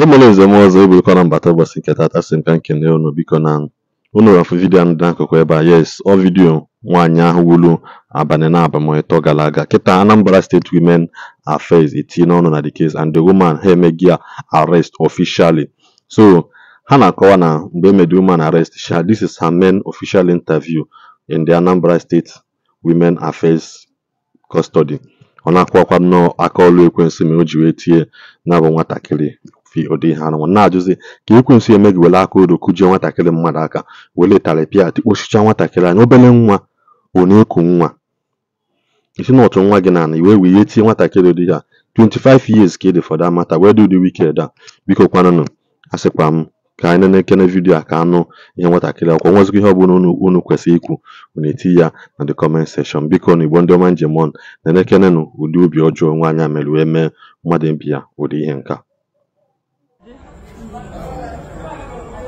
emela nzem ọzọ eburukwana mbata ụbọchị nke tata sị m ka nkene unu biko na unu afụ vidiyo ahụ dị n'akụkụ ebe a yes ọ vidiyo nwaanyị ahụ wulu abalị na abamịtọ gara aga kịta Anambra State Women Affairs etinye ọnụ na the case and the woman ha emeghị ya arrest officially so ha na-akọwa na mgbe emedi woman arrest sha this is her main official interview in the Anambra State Women Affairs custody ọ na-akọwakwa nnọọ aka ọlụ ekwensị mere o ji wee tie na bụ nwatakịrị fi ụdị ihe anụnwa na-ajụzi ka ekwensu eme gị were aka odo kụjie nwatakịrị mmadụ aka were tarịpịa tikpochichaa nwatakịrị anya obere nwa ọ na-eku nwa isi na ọtụ nwa gị na ana iwe wee ihe tie nwatakịrị dị ya 25 years ka ị e dị fọda mata wee dị ụdị wiked a biko kwanụnụ a sịkwa m ka anyị na-ekene vidiyo a ka anụ ihe nwatakịrị akwụkwọ nwezikwa ihe ọbụla unu kwesịrị ikwu unu eti ya na the comment section biko na igbo ndị ọma njem ọnụ na-enekenenụ ụdị obi ọjọọ nwaanyị a mere wee mee mmadụ mbi ya ụdị ihe nka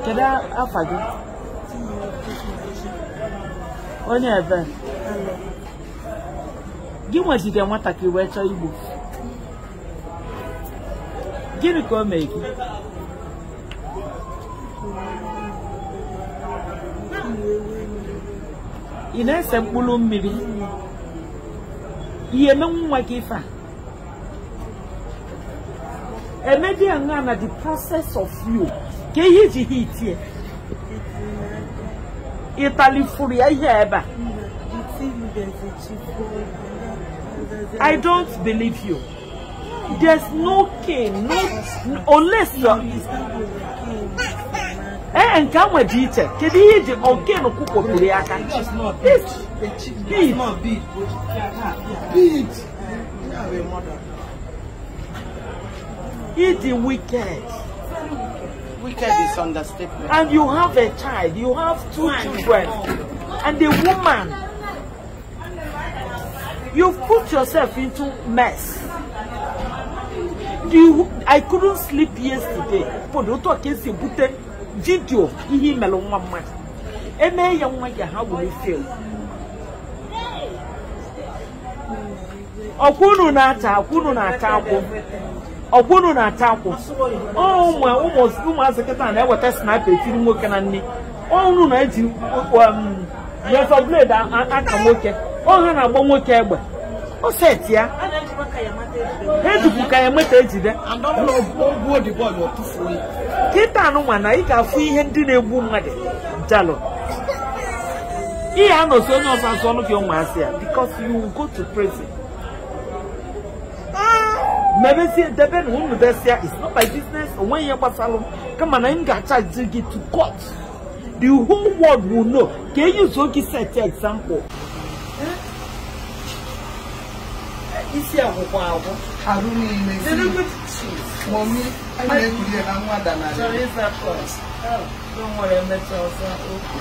Kedu afa gị? Onye ebe? Gị nwetịrị nwatakịrị wee chọọ igbo. Gịnị ka o mee gị? Ị na-ese mkpụrụ mmiri? Ihe emenwu nwa gị ife a? Emedi aṅaa na the process of you ke ji hitie itali furi ayeba I don't believe you. There's no king, no unless you Eh nke ahụ dị iche kedu ihe ji oke na ọkụkọ biri aka He the wicked. Wicked is understatement. And you have a child, you have two children, and a woman. You've put yourself into mess. Do You, I couldn't sleep yesterday. For the bute video ihi melo nwa mma. Eme ya nwa ya ha will feel. Okunu na ata, okunu na ata akwo. ọkwụnụ na-ata akwụ ụmụazị kịta na-eweta sniper tiri nwoke na nne ọnụ na-eji um, razor blade aka nwoke ọha na-agba nwoke egbe o ya ejikwu ka ya meta ejide kịta anụnwa na ị ga-afụ ihe ndị na-egbu mmadụ jalụ ị ya anọsi onye ọzọ azụ ọnụ gị ụmụazị ya because you go to prison Maybe see Mebesi deben who Nubesia it's not my business when you salon. Come on, I'm gonna charge you to court. The whole world will know. Can you so set your example? Is akwụkwọ akwụ. Arụ niile si. Dere good cheese. Mọmi, anyị na-ekuli na nwada na anyị. Chọrọ ịza kọs. Don't worry, emecha ọsọ okwu.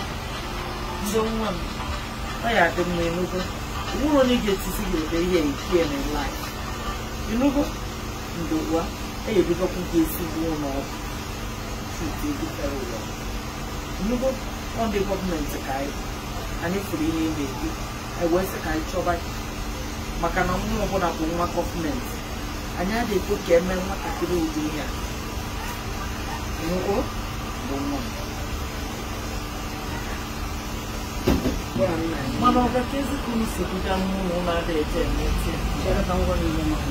Ndị nwa m, ọ ya dị m you Nwụrụ onye ga-etisi gị ụdị ihe ike na life. You know what? ndị ugbu a eyebugokwu gị ezigbo ụlọọgwụ chukwu ebutere ụlọ nnukwu ọdị gọọmenti ka anyị pụrụ ihe na-ebi wee sị ka anyị chọba maka na nwa ọbụla bụ nwa gọọmenti anyị adịghị ekwe ka emee nwatakịrị ụdị ihe a nnukwu bụ nwa mana ọ ka mmụọ na eche chere ka ngwa niile maka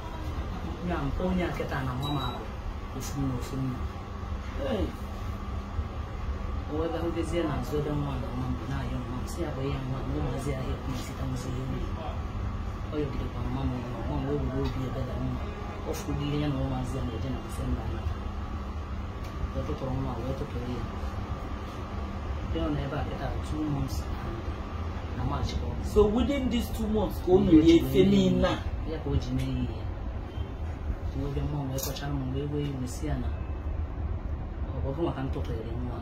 ya nke onye nkịta na nwa m abụ ofu na ofu nna owebarubezie na azụ ebe nwa na nwa na-ahịa nwa si ya bụ ihe nwa na ụmụazị ahịa kwuzitamzi ihe ọ mma nwa obi mma ọ ya na ụmụazị ya na-eje na mfe mba wee tụtụrụ nwa wee tụtụrụ ya bịa na ebe a kịta na March so within these two months ka o mere efe niile o ji mee ya kumwambia mama unaweka chama wewe umesiana wavuma kantotoelemwa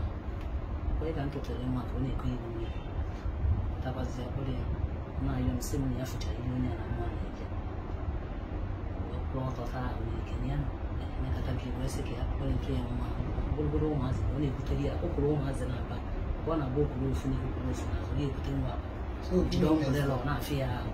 kwaye kantotoelemwa kone kwiwe takwaziya kule nayo msimu yafuta ilione na mwana ija kwotota unikeniana nekatakiweseke kole kemwa bulbulu omazi one kutalia okulu omazi naba kwana bokulu ofunike okulu ofunazo ye kutenwa kidongolelo nafiya awo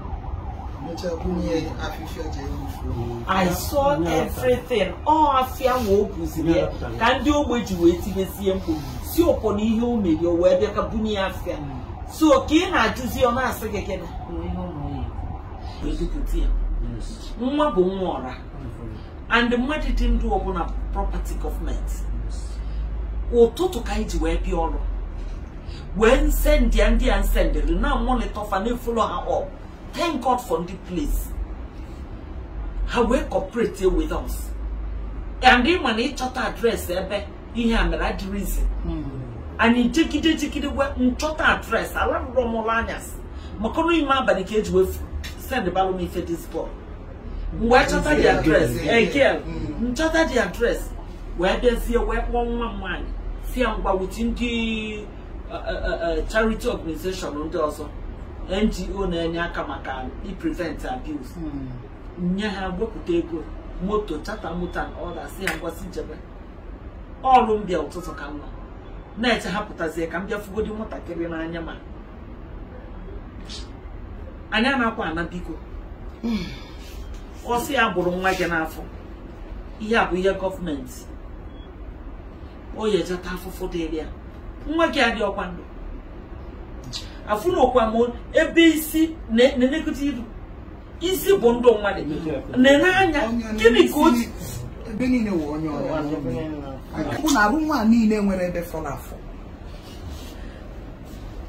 I saw everything ọ afịa ma o ya ka ndị ogbe ji wee tinyesie mkpu si ọpọ ihe o o wee bịa so ka ị na ọ na gị nwa bụ and property government. ụtụtụ ka ji wee bịa ọrụ wee nsendịa ndị a na na-efolo ha Thank God for this place. How we cooperate with us. And then when he chọta address ebe eh, ihe a mere adịrị ize. Anyị jigide jigide wee nchọta address alarụrọ m address. I love ọnụ Makono abalị ka eji wefu send balụ m ife this boy. Wee chọta the address. Hmm. Eh, girl. Again, nchọta the address. We Wee bịazie wee kpọọ one, one, one. See, I'm ngwa wuti the uh, uh, uh, charity organization ndị also. ngo na-enye aka maka iprevent abuse hmm. nye ha wepụta ego moto chata moto na ọda si ya ngwasị njebe ọrụ mbịa ụtụtụ ka mma na-eche ha pụtazie ka m bịa fugodi nwatakịrị n'anya ma anya na-akwa ana biko hmm. ọsị ya gbụrụ nwa gị n'afọ ihe a bụ ihe gọọmenti o yejeta afụfụ dịrị ya nwa gị adị ọkwa ndụ afụnokwa m ebe isi na-elekọta iru isi bụ ndụ mmadụ na-enye anya gịnị ka o ebe niile wụ onye ọrụ na arụ nwa niile nwere ebe fọrọ afọ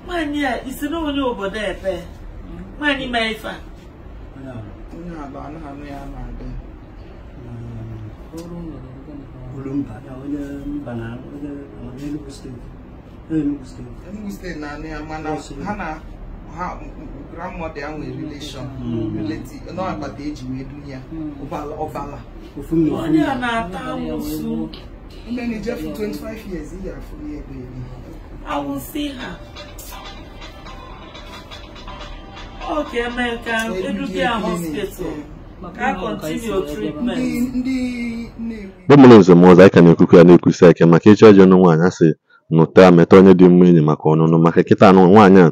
nwaanyị a isi na onye obodo epe nwaanyị ma ife a onye hmm. mba na onye mba na onye Enugu steeti Enugu steeti na anụ ya mana ha na ha ya nwere relation hmm. relative hmm. hmm. na agbata wee a na-ata ahụ mgbe na ije 25 years afọ ha eme ka hospital ndị nne nwezomozi anyị ka na-ekwukwu ya na-ekwusi aka maka ịchọ ọjọọ nụ nwaanyị asị nụta meta onye dị mma enyi maka ọnụnụ maka nkịta anụ nwaanyị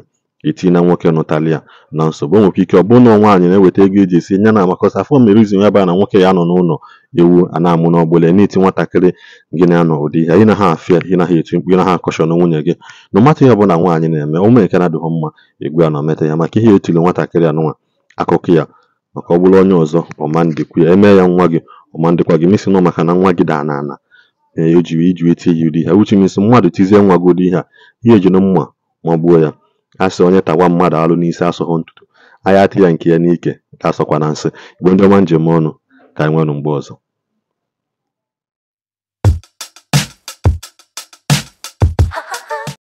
a na nwoke nụtali ya na nsogbu o ike ọ bụrụ na nwaanyị na-eweta ego eji esi nye na makọsa afọ mere izu ya baa na nwoke ya nọ n'ụlọ ewu a na-amụ n'ọgbụla n'iti nwatakịrị gị na-anọ ụdị ihe ị na ha afịa ị na ha eti mkpu ị na ha akọshọn nwunye gị na matụ ihe ọbụla nwaanyị na-eme ụmụ nke na-adịghị mma egwu a nọ meta ya maka ihe etiri nwatakịrị anụnwa akụkọ ya maka ọ bụrụ onye ọzọ ọma ya emee ya nwa gị ọma ndịkwa gị misi nọ maka na nwa gị daa n'ala na o jiri iji wee ihe dị ha uche mmadụ tizie nwa godo ihe a ihe ejiri mma ma gbuo ya a onye tawa mmadụ alụ n'isi asọghọ ntutu ahịa ati ya nke ya n'ike ka asọkwa na nsị igbe ndị njem ọnụ ka anyị nwenụ mgbe ọzọ